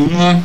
uma